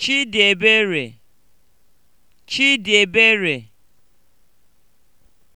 Chidịebere Chidịebere